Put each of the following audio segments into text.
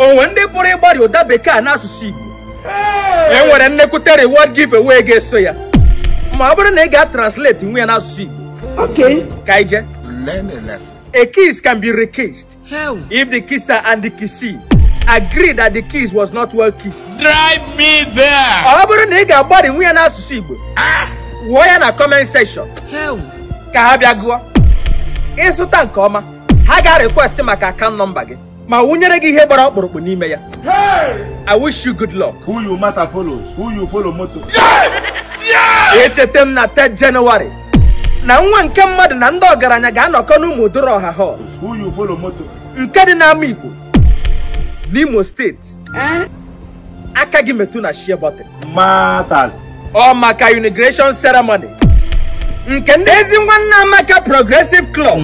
onwe ndị pụrụ ịgbarị ụda bekee n'asụsụ Igbo e nwere nnekwute reward giveaway ga-eso ya ma ọ bụrụ na ị ga-translate nwe n'asụsụ Igbo ka ije a kiss can be rekissed if the kisser and the kissee agreed that the kiss was not well kissed drive me there ọ bụrụ na ị ga-agbarị nwe n'asụsụ Igbo wụọ ya na comment section ka ha bịa gụọ ịzụta nke ọma ha ga-request maka account nọmba gị ma wụnyere gị ihe gbara ọkpụrụkpụ n'ime ya I wish you good luck. Who you matter follows, who you follow moto. echeta m na 3 Jenụwarị na nwa nke mmadụ na ndị ọgaranya ga-anọkọ n'ụmụ odoro ọha hall who you follow moto. nke dị n'ama Igbo n'Imo steeti eh? aka gị metu na shie bọtịn ọ maka unigration ceremony nke ndị ezi nwanne Amaka Progressive Club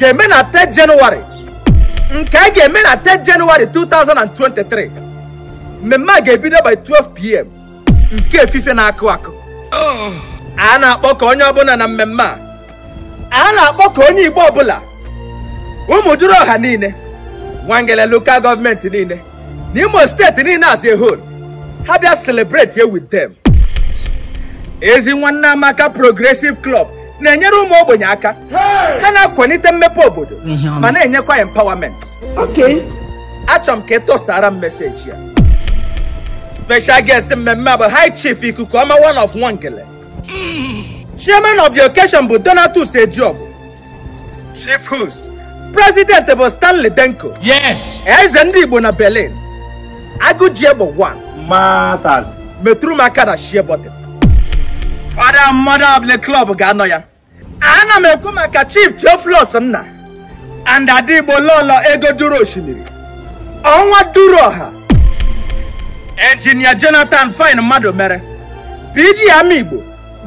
ga-eme na 3 Jenụwarị nke a ga-eme na 10 Jenụwarị 2023 mmemme a ga-ebido by 12pm nke efife na-akụ akụ a na-akpọ ka onye ọbụla na mmemme a a na-akpọ ka onye Igbo ọbụla ụmụduru ọha niile nwangele lokal gọọmenti niile na Imo steeti niile as a whole ha bịa celebrate here with them ezi nwanne amaka progressive club na-enyere ụmụ ogbenye aka ha na-akwalite mmepe obodo ma na-enyekwa empowerment achọrọ m ka ị tụsara m meseji ya special guest mmemme bụ high chief ikuku ọma one of gele chairman of the occasion bụ Donatus Ejiogu chief host president bụ Stanley Denko eze ndị Igbo na Berlin agụjie bụ one metụrụ aka na shie father and mother of ga-anọ ya ana m ekwu maka chief Theophilus nna and adigbo lọọlọ ego duru osimiri ọnwa duru ọha engineer Jonathan Fine mmadụ mere PGM Igbo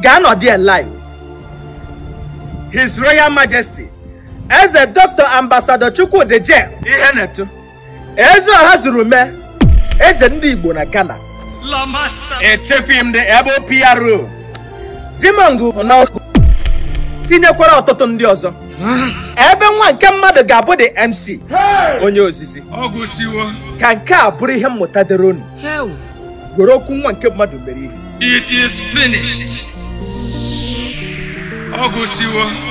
ga-anọdị live His Royal Majesty Eze Dr. Ambasado Chukwudi na-etu. eze ọha zuru mee eze ndị Igbo na Ghana echefughị m the ebo PRO Dimongu tinyekwara ọtụtụ ndị ọzọ ebe nwa nke mmadụ ga-abụ dị MC onye ozizi ka nke a bụrụ ihe mmụta dịrị unu gwere okwu nwa nke mmadụ mere ihe it is finished ọ gụsiwo